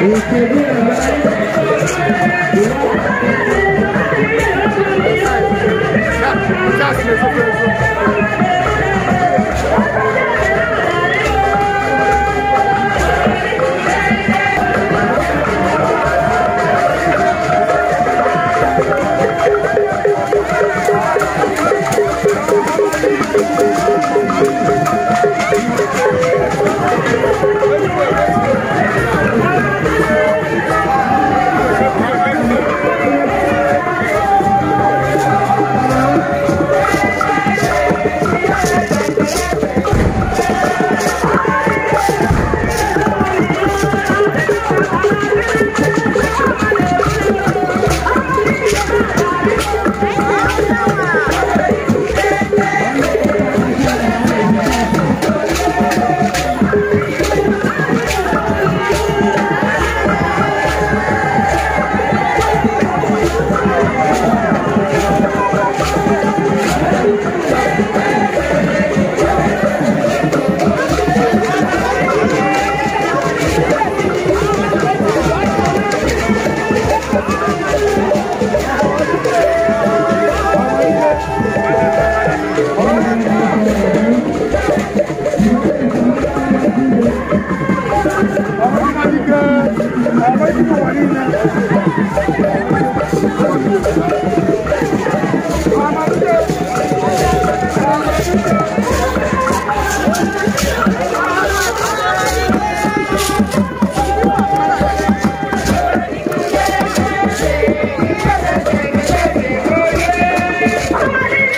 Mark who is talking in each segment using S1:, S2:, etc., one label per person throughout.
S1: Gracias.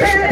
S1: Yeah.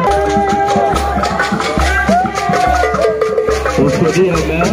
S1: Yeah, man.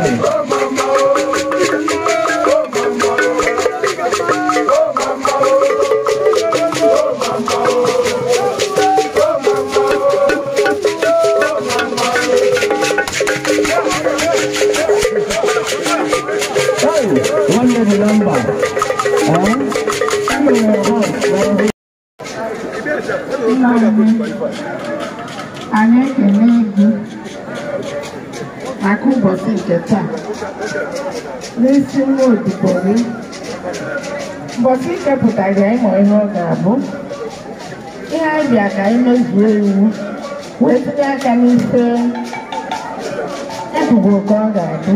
S1: 네. mbọchị ichepụtaghị ịmụ ihe ọ ga-abụ ihe anyị bịa ka anyị mezuo iwu wee tinye aka n'ife ebubo ka ọ ga-adị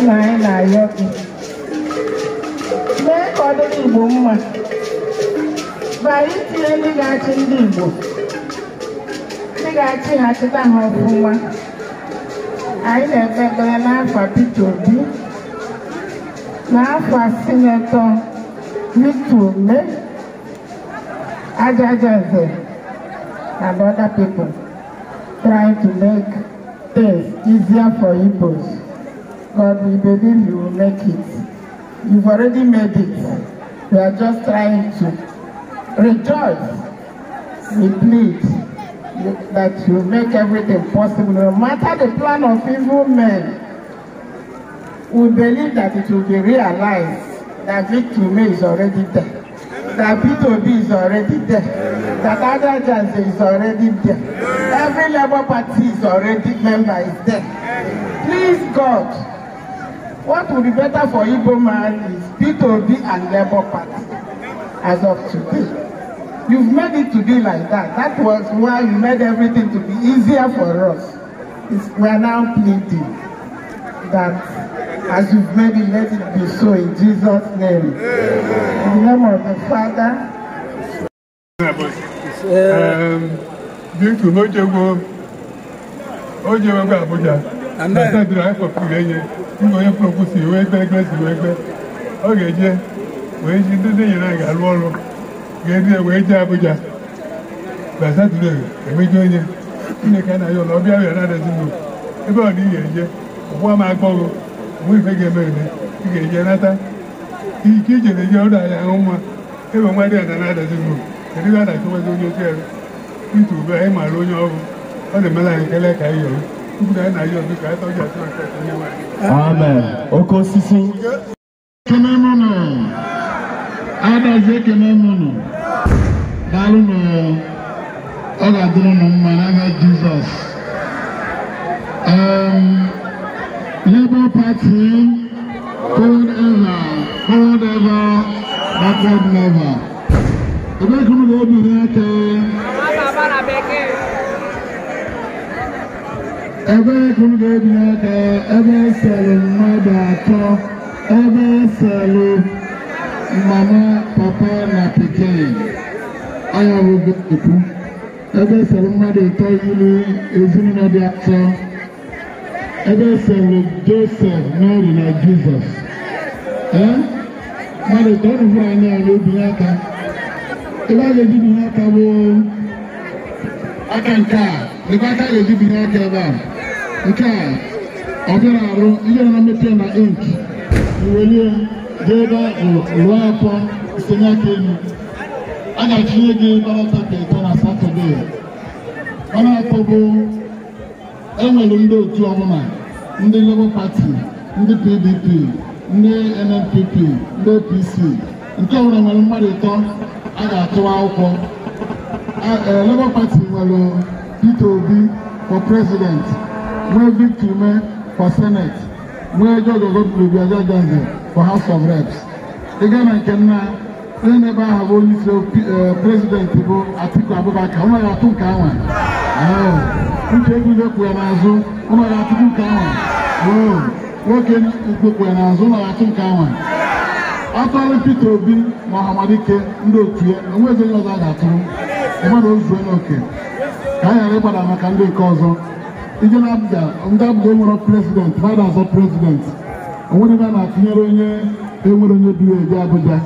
S1: nna anyị na-ayọ gị mee ka ọ dịrị Igbo mma bara itinye ndị ga-achị ndị Igbo ndị ga-achị ha chịta ha ọfụma anyị na-ekpe ekpere n'afọ Peter Obi n'afọ sinetọ used to make Ajajazze and other people trying to make things easier for Igbos. But we believe you will make it. You've already made it. We are just trying to rejoice. We plead that you make everything possible, no matter the plan of evil men. We believe that it will be realized that Victor is already there, that p b is already there, that Adajanse is already there, every Labour Party is already member is there. Please God, what would be better for Igbo man is P2B and Labour Party as of today. You've made it to be like that. That was why you made everything to be easier for us. It's, we are now pleading that As you've made it, let it be so in Jesus' name. In the name of the Father. Um, na oh, Abuja onye kpọpụ si ọ ga-eje wee ji ndị nyere anyị ga-alụ ọrụ ga ya wee jee Abuja na onye Chineke anaghị ụlọ ọbịa bịara na ebe ọ na ị eje ụgbọ agbọghọ mụ ife ga-eme eme ị ga-eje nata ike ijere je ọrụ ahịa ahụ mma ebe nwa dị ada na-adazi gị kedu ga adachụwazi onye otu ebe itu ube anyị maara onye ọrụ ọ na-emela anyị ekele ka anyị yọrọ tupu na anyị na-ayọ ọdụ ka anyị tọji atụ aka onye nwanyị amen oke osisi ekene mụnụ adazi ekene mụnụ daalụ nụ ọ ga-adịrị ụnụ mma n'aha jizọs Labour Party, hold ever, hold ever, backward never. Ẹgbẹ́ kúrò ló bìnrin ẹ̀kẹ́. Ẹgbẹ́ kúrò ló bìnrin ẹ̀kẹ́. Ẹgbẹ́ sẹ̀lẹ̀ mmadụ atọ. Ẹgbẹ́ sẹ̀lẹ̀ mama, papa na pikin. Ayọ̀ bụ ekwu. Ẹgbẹ́ sẹ̀lẹ̀ mmadụ atọ yiri ezinụlọ dị atọ. ebe esere josef mary na jizọs mmadụ ka ọnụ hụrụ a ya n'obinye aka ebe a ga-eji binye n'aka bụ aka nke a lekwa aka a ga-eji binye n'aka ebe a nke a ọ bịara arụ ihe na mmepe na ink iwelie jee ebe lụọ afọ tinye aka elu a ga-achịnye gị barata ka ịtọ na satọdee ọnụ atọ bụ enwere ndị otu ọbụla ndị Labour Party ndị PDP ndị NNPP ndị APC nke nwere nwere mmadụ ịtọ a ga-atụwa akwụkwọ e, Labour Party nwere Peter Obi for president nwee Victor Ume for senate nwee George Ogoblubia Gbajanze for house of reps ịga na nke nna onye na-ebe aha bụ onye isi eh, prezidenti bụ Atiku Abubakar ọ naghị atụ nke anwa uche ebubo kwu ya n'azụ ụnọrọ achụkwu nke ahụ nwoke ukwu kwu ya n'azụ ụnọrọ achụ nke ahụ atụrụ Peter Obi na Ọhamadike ndị otu ya enwezi onye ọzọ a ga-atụrụ mmadụ ozuo n'oke ka anyị ghara ịgbada maka ndị nke ọzọ ije na abụja ndị abụja enwere prezident mmadụ azọ prezident onwere ebe a na-atụnyere onye enwere onye bi ebi Abụja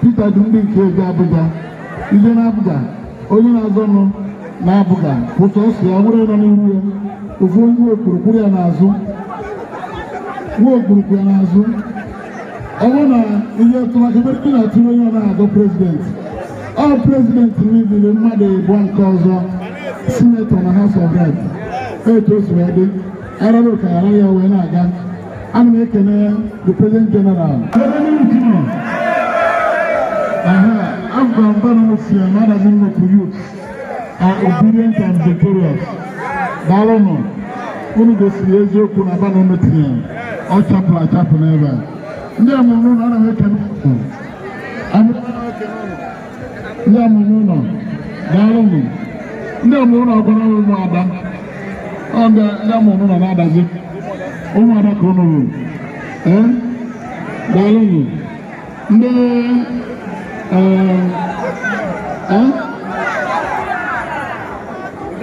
S1: Peter dị ndị nke ebi Abụja ije na abụja onye na-azọ nụ na-abụga otu o si ya were nọ n'ihu ya ofu onye okpurukpuru ya n'azụ nwa okpurukpu ya n'azụ ọ bụrụ na ihe tụmakebere na-atụrụ onye ọ na-agụ prezidenti ọ prezidenti mebiri mmadụ ịbụọ nke ọzọ sinetọ na House of Rep etu o si wee dị arara ọkaghara ya wee na-aga ana m ekene the president general aha abụba mba na osi ya ma adazi nnukwu youth are obedient and victorious daalụnụ unu gosiri eziokwu na aba na unu tinyere ọ chapụrụ achapụ n'ebe a ndị amụrụ ụlọ anaghị eke n'ụlọ ndị amụrụ ụlọ daalụnụ ndị amụrụ ụlọ gwara ụmụ ada ọ ndị amụrụ ụlọ na-adazi ụmụ ada ka ụnụ ruru ee daalụnụ ndị ee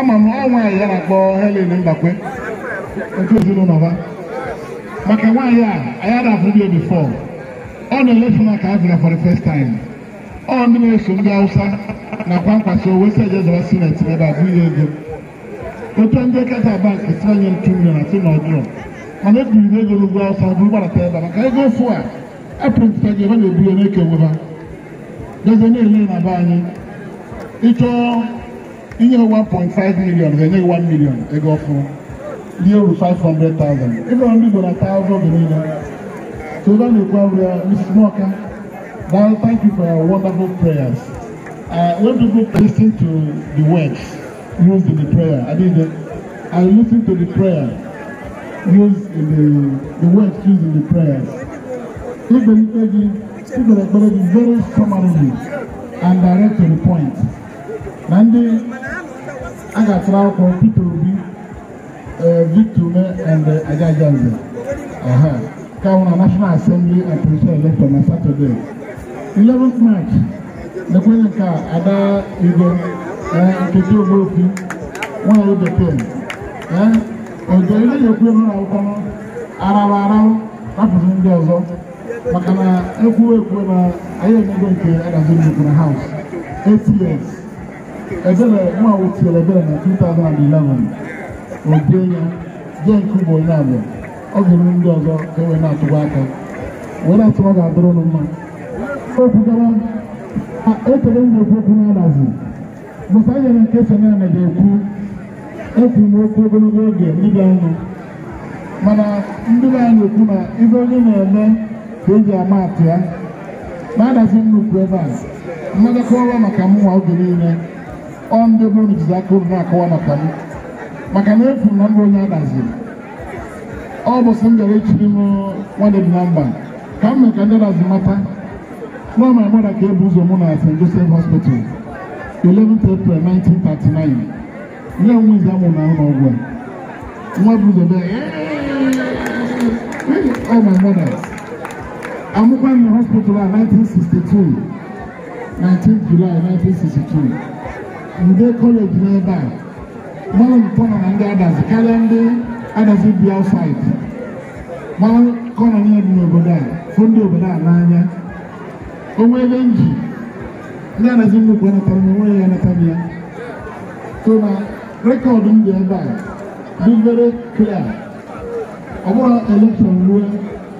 S1: ama m ọnwa ya na akpọ Helen Mbakwe otu ezinụlọ ha maka nwaanyị a anyị ada afụ bi bifọ ọ na-elefu na ka abịara for the first time ọ ndị na-eso ndị Hausa nakwa nkwasị owe si eje zara sineti ebe a bụghị ego otu ndị kata banki si anye ntu mmiri na si na ọdịọ mana ebiri na ego n'ugwu Hausa bụrụ gbarata ebe maka ego ofu a epụrụta gị ebe na-eburu na-ekewe ha dozie na-ele na be anyị ịchọọ inye 1.5 million ha enyeghị 1 million ego ọfụrụ ndị oru 500,000 ebe ndị Igbo na taa ụzọ oge niile soba na-ekwu abụ ya Mrs. Nwaka now thank you for your wonderful prayers uh, when people listen to the words used in the prayer I mean I listen to the prayer used in the the words used in the prayers ikpelikpe gị ikpere ekpere gị very summarily and direct to the point And ndị a ga-atụrụ akwụkwọ Peter Obi e, Victor Ume and Agaja e, Nze ka hụ na National Assembly and na Saturday 11th March nakwanye nke Ada Igwe Nkechi Ogbuopi nwanyị bekee ojere na-ekwu ebe na akwụkwọ arawa arawa rapụrụ ndị ọzọ maka na ekwuwe na anyị emego nke adazi nnukwu House ebere nwa wotiere ebele na 2011 obie ya je nke ugbo onye abịa ọ ga-eme ndị ọzọ ka ewee na-atụwa aka were atụ ọ ga-adụrụ nụ mma okwugara ekele m na-ekwu okwu na-adazi bụta nyere nke senana ga-ekwu ekwu m okwu ogologo oge ndị bịa ọnụ mana ndị be anyị ekwu na ibe onye na-eme ka eji ama atụ ya na-adazi nnukwu ebe a mmadụ kọwa maka mụnwa oge niile ọ ndị bụrụ na izizi aka unu na-akọwa maka m maka na efu na mbụ onye adaziri ọ bụ m bịara echiri m nwadị na mba ka m mee ka ndị adazi mata nọọ ma mmadụ ka ebu ụzọ mụ na St. Joseph Hospital 11 April 1939 nye onwe izi amụ na ụlọ ọgwụ nwa bụ ụzọ bịa ọ ma mmadụ amụkwa m hospital a 1962 19 July 1962 ndị kọleji n'ebe a mmanwụ mpọnọ na ndị adazi karịa ndị adazi bi outside mmanwụ kọnọ niile dị n'obodo a fụ ndị obodo a n'anya onwe ebe nji ndị adazi nnukwu anatara na onwe ya anatara ya so na rekọdụ m dị ebe a dị very clear ọ bụrụ elekshọn ruo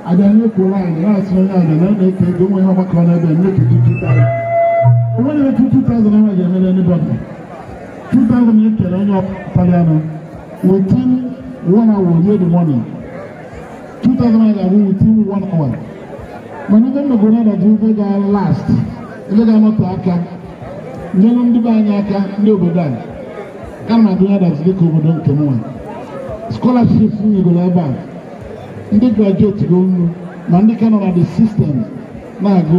S1: abịa nye kwuo anyị na-asụ onye ada na ọ na-eke ego nwe ọgbakọ n'ebe a nye kedu O etu 2000 ahụ ga-emere anybody 2000 ya kere onye the money 2000 ga-abụ ndị mmegoro ọdọdụ ife ga last ndị ga-anọtụ aka ndị anyị aka ndị obodo ana na adịnye adazi ka obodo nke m ndị graduate na ndị ka nọ na na-agụ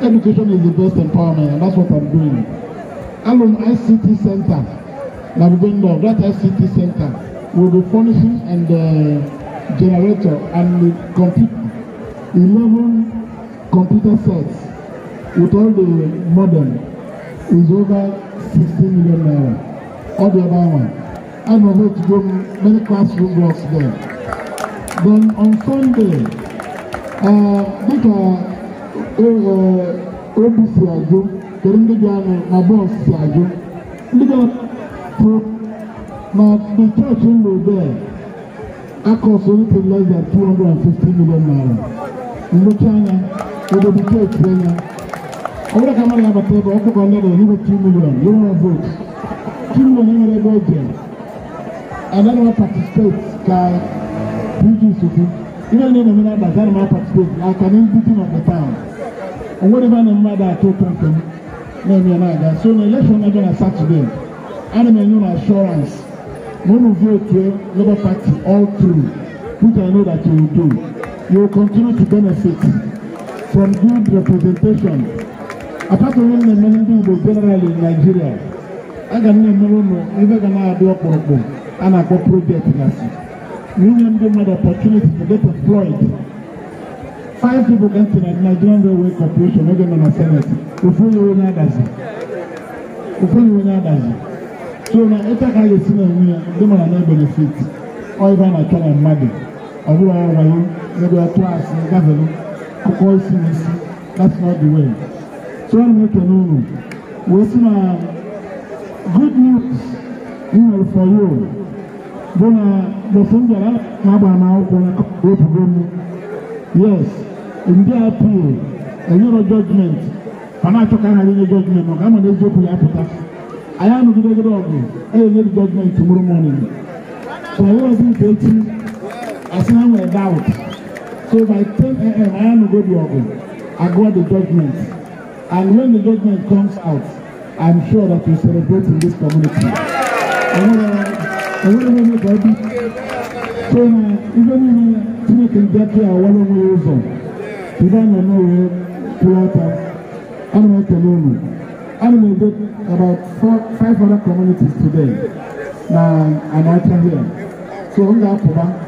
S1: education is the best empowerment, and that's what I'm doing. Alone ICT Center, that we're Nabugendo, that ICT Center will be furnishing and uh, generator and uh, compute 11 computer sets with all the modern is over 16 million naira. All the other one. I'm going to go many classroom blocks there. Then on Sunday, uh, ɛwɔ obi si adwo kɛlɛ ndị bịa nọ na bọs si adwo ndị bịa pụ ma the church nọ there akọs anything less than two hundred and fifty million naira nnochi anya ebe the church anya ọ bụrụ ka mmadụ abata ebe ọ kụkọ ndị dị n'ime two million you wanna vote two million nwere ebe ọ jere anaghị m participate ka PG sokwu ihe niile na-eme na-abata anaghị m participate aka na ndị dị na the town onwereba na mmadụ atọ kpọmkwem na-eme na-aga so na elekshọn na-abịa na satọde ana m enye na ashọrans na unu votu Labour Party all through which I know that you will do you will continue to benefit from good representation apart from onye na-eme ndị Igbo general in Nigeria aga m na-emere ụnụ ebe ga na-adị ọkpụrụkpụ a na-akpọ project gasị na inye ndị mmadụ opportunity to get employed five people get to the Nigerian Railway Corporation wey dem na senate ofunyi wey na dazi ofunyi wey na dazi so na ịta ka a ga-esi na enwe ya ndị mara na benefit ọyịba na atọ na mmadụ ọ bụrụ ọrụ wayo ebe ọtụ asị gafere akụkọ isi na isi that's not the way so ọ na-ekele unu wee sị na good news m nwere for you bụ na uh, the same bịara na agbara m akwụkwọ na akụkọ obodo m yes ndị apụl enyero jọjment ma na-achọka ha enye jọjment maka ama na eziokwu ya apụta anyị anụgidegide ọgụ enyenyere jọjment mụrụ mọnin so ọ bụrụ nke echi asị ha nwere daut so by 10am anyị anụgodi ọgụ agụọ the judgment and when the judgment comes out i'm sure that we celebrate in this community. enwere m ka ọ dị so na ibe niile chineke ndị aka ya ọwara onwe ya ụzọ Biba na no ye Pulata, Anime Kenunu. Anime did about four, five other communities today. Now, and I can hear. So, on that,